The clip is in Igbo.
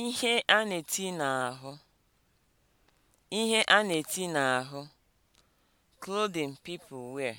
Ihe a na-eti n'ahụ: Ihe a na-eti n'ahụ (clothing people wear)